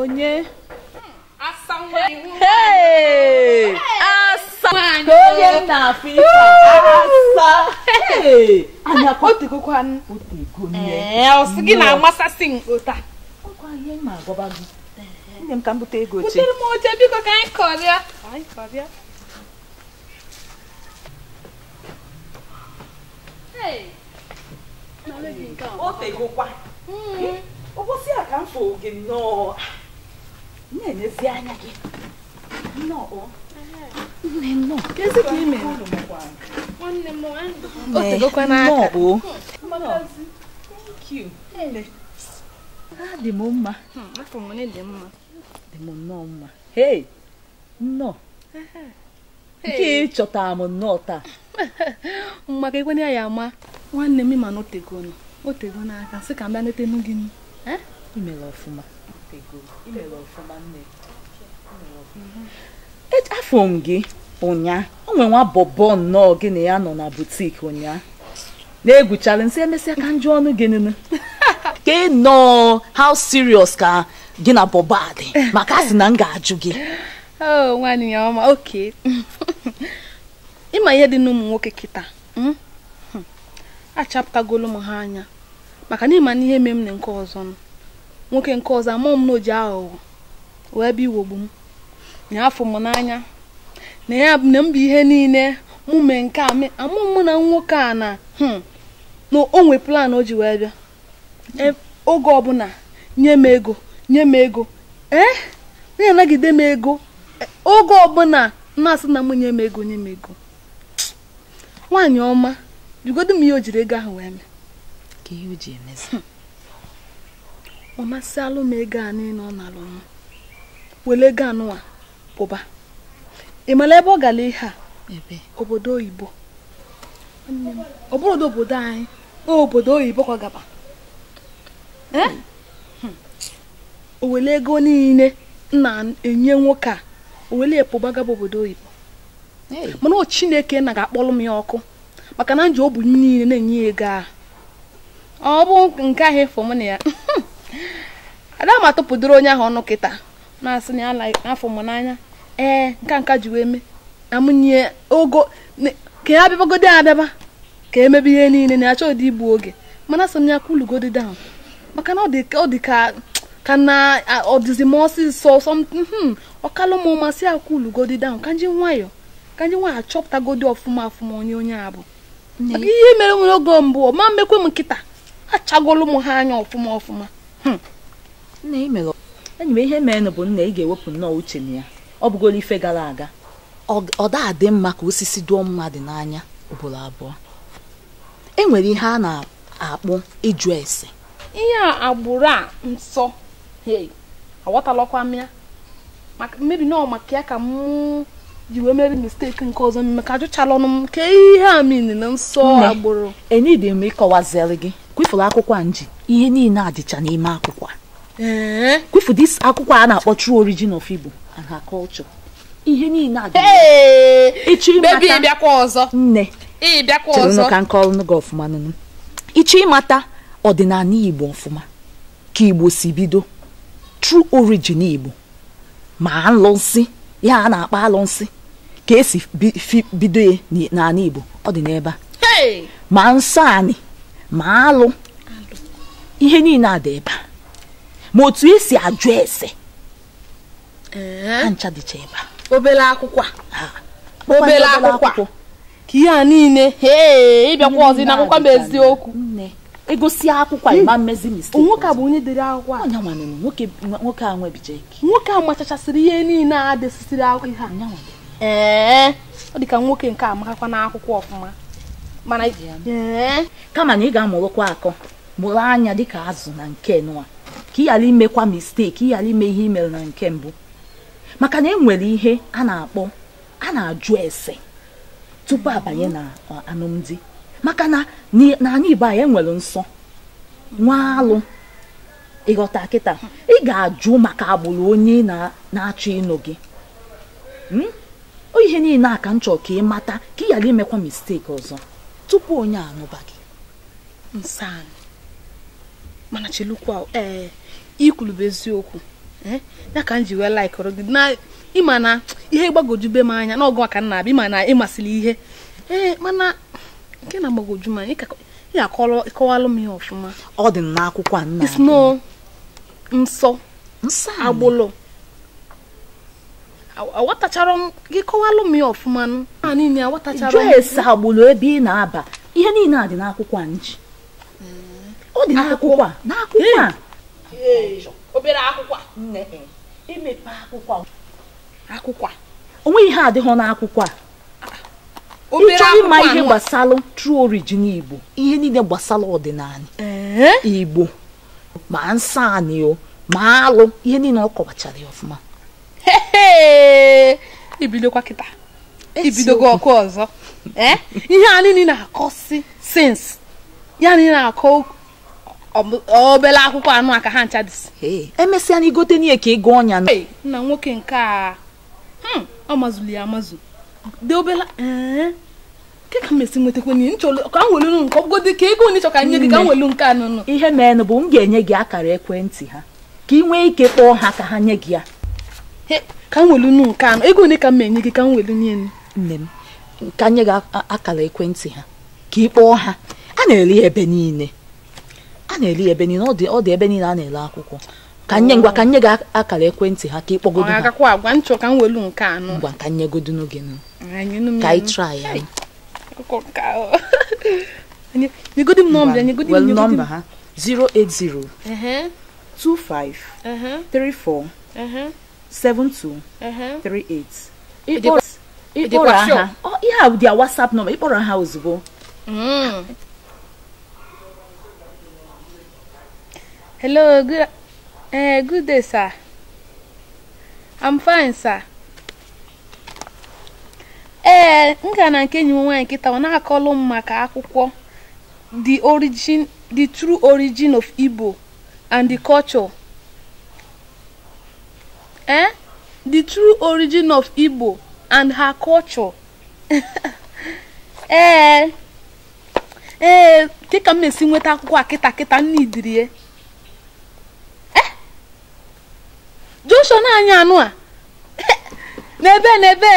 onye onye na-afụ ife anya ọsị eh, gị na-amasasị m na gị eh. nne m ka m bute ego oche butere m oche biko ka anyị kọrịa anyị a ka m fụ gị nnọọ na-emezi anya gị adị m mma dị m nnọọ mma hei nnọọ nke ịchọtara m nnọọ taa mma ka ekwenye ya ama nwanne m ịma na otegona otegona aka sị ka m bịa netenụ gị eh? imere ọfụma afọ e, m gị ụnya o nwere nwa bọbọ nnọọ gị na ya nọ na butik ụnyaa na-egwuchala nsị emesịa ka njụ ọnụ gị nụnụ ka nọọ how serious ka gị na bọbọ a dị maka a na m ga-ajụ gị oh, ịma ihe dị n'ụmụ nwoke kịta hmm? hmm. achapụtagolo m ha anya maka na ịma ihe mee m na nke ọzọ nọ nwoke nke ọzọ amụọ m na o aghụghọ wee bịa iwogbu m na afọ m n'anya na ya na mba ihe niile mụ mee nke a amụọ m na nwoke a na hmm, na o nwe plan o ji wee bịa e, oge ọbụla nye m ego nye m ego ee na-anagide m ego e, oge ọbụla na-asị na m nye m ego nye m ego nwaanyị ọma jigodo m ihe o jiri ego ahụ wee mee ka ihe o ji emezi hmm. ọ masịalụ m ego a niile ọ nalụ m wele ego anụwa pụba ị mara ebe ọ gara ihe a obodo oyibo ọ bụrụ obodo anyị o obodo oyibo ka ọ gaba hmm. o wele ego niile na-enye nwoke a o wele pụba gaba obodo oyibo mana o chineke na ga-akpọrọ m ya ọkụ maka na nji o bụ niile na-enye ego a ọ bụ nke ahụ fọm na ya adama tụpụdoro onye ahụ ọnụ kịta na-asị na ya n'afọ mụ n'anya ee nka nka ji wee mee nye ogo ka ya abịabagodi abịaba ka emebe ihe niile na achọ ụdị igbu oge mana asị m ya kwulugodi down maka na ọ dị ka ka na ọdịzi m ọsịsọ something ọkalụ m hmm, masị ya kwulugodi down ka nji nwayọ ka nji nwayọ achọpụtagodi ọfụma ọfụma onye onye abụ maka ihe mere m oge mbụ ma mmekwe m nkịta achagolu m ha anya ọfụma ọfụma hmm. nna emere enyi m ihe meenụ bụ nna ị e ga-ewepụ nnọọ uche na ya ọ bụgoro ife gara aga ọ dị mma ka osisi dụọ mmadụ n'anya ugboro abụọ e nwere ihe a na akpụ ịjụ ese ihe agbụrụ a nsọ aghọtalọkwa m ya maka mmebi nọọ maka ya ka m ji wee mere misteki nke ọzọ maka ajụchala ọnụ m ka ihe a mini na nsọ agbụrụ enyi dị m ịkọwaziri gị kwifụrụ akwụkwọ nji ihe niile adịcha n'ime akwụkwọ kwufu eh? dis akwụkwọ a na-akpọ true origin of Igbo and her culture ihe niile adị ịchọ ịmata nne ka nke ọlụnụ gị ọfụma nụnụ ịchọ ịmata ọdịnala Igbo ọfụma ka Igbo si bido true origin Igbo ma alụnsị ya a na-akpọ alụnsị ka esi bido ya n'ala Igbo ọ dị n'ebe a ma nsọ anị ma alụ ihe niile a ebe a ma otu esi ajụ ese eh? ha ncha dịcha ebe a obere akwụkwọ obere akwụkwọ ka ihe a niile ịbịakwa e ọzọ na akwụkwọ bụ eziokwu egosi akwụkwọ ịma e hmm. mmezi mistake nwoke a bụ onye dere akwụkwọ a nwoke a nwebijeki nwoke a machachasịrị ihe niile a desisiri akwụkwọ ihe ee eh? ọ dị ka nwoke nke a amakakwa akwụkwọ ọfụma mana ee eh? kama na ị ga-amụrụkwa akọ mụrụ anya dịka azụ na nke nụa ka ị ghara imekwa misteki ị ghara ime ihe imere na nke mbụ maka na enwere ihe a na-akpọ a na-ajụ ese tupu abanye na alụmdi maka na anyị igbo anyị enwere nsọ nwa alụ ịghọta kịta ị ga-ajụ maka agbụrụ onye na-achọ ịnụ gị hmm? ihe niile a ka m chọrọ ka ị mata ka ị ghara imekwa misteki ọzọ tupu onye anụba gị nsọ anyị mana chelukwa ee eh, ikwulube eziokwu eh, ya ka m ji wee laikụrụ gị na ịma na ihe gbagojube m anya n'ọgụ aka nna abịa ịma na ịmasịrị ihe ee eh, mana nke na agbagoju m anya ị akọwalụ m ihe ọfụma ọ dị n'akwụkwọ a nna sno nsọ agbụlụ awatachara m gị kọwalụ m ihe ọfụma niile awatachara m jụọ esi agbụlụ ebe ị na-aba ihe niile a dị n'akwụkwọ a nji hmm. ọ dị n'akwụkwọ a n'akwụkwọ a obere akwụkwọ nne emepe akwụkwọ akwụkwọ o nweghị ihe adịghị n'akwụkwọ a ịchọ ịma ihe gbasara true origin igbo ihe niile gbasara ọdịnala igbo ma nsọ anị ma alụ ihe niile ọ kọwachara ya ọfụma ibidokwa kịta ibidogo ọkụ ọzọ ihe anyị na-akọ si sins ya anyị na-akọ obere akwụkwọ anụ aka ha ncha dịsị emesịa na igote n'ihe ka ịgụ ọnya nna nwoke nke a hmm, ọ mazụli ya amazụ dị obere ke ka mesi nwetakwa n'ihe nchọrọ ka m welu nke dị ka ego onye chọ ka nye gị ka m welu nke anụnụ ihe meenụ bụ m ga-enye gị akara ekwentị ha ka ị nwee ike kpọọ ha ka ha nye gị ya ka m welu nke anụ ego one ka m enye gị ka m welu nye nne m ka nye gị akara ekwentị ha ka ị kpọọ ha a na-ere ebe niile na-eli ebe niile ọ dị ebe niile a na-ele akwụkwọ ka nye ngwa ka nye akara ekwentị ha ka ịkpọgodo ha agwa nchọ ka m welu nke anọ ngwa ka nyegodo n'oge ka ị try ya m nọmba 080 25 34 72 38 ịkpọrọ ha ihe a dị whatsapp nọmba ịkpọrọ ha ozugbo hmm. Hello, good, uh, good day, sir. I'm fine, sir. Ee, eh, m na nke enyi m nwaanyị nkịta ọ na-akọlụ m maka akwụkwọ The Origin, The True Origin of Igbo and the Culture. Eh? The True Origin of Igbo and Her Culture. eh ee, eh, dịka m na-esi nweta akwụkwọ a kịta kịta nna idirie ọsọ na-anya anụ a n'ebe n'ebe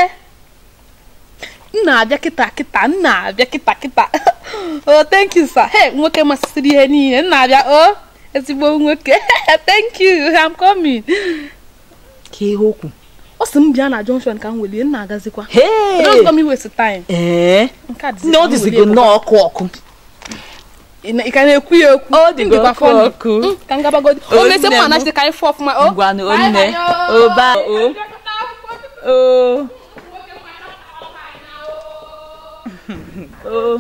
m na-abịa kịta kịta m abịa kịta kịta o oh, thank you sir hey nwoke masịsịrị ihe niile m abịa o oh, ezigbo nwoke thank you i'm coming ka ihe okwu ọ sị m bịa na junction ka m welie m agazikwa hey! m iwesi time ee eh? nke a dịzigo ọkụ ọkụ ị ka na-ekwu ya okwu ọ dị okwu ka ngabagodi oh, ọ na-ese mma na chitekarị fọ ọfụma o ngwanụ onne oba o o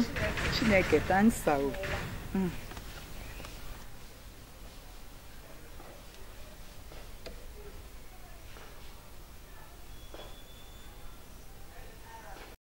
chineke tansa o oh. mm.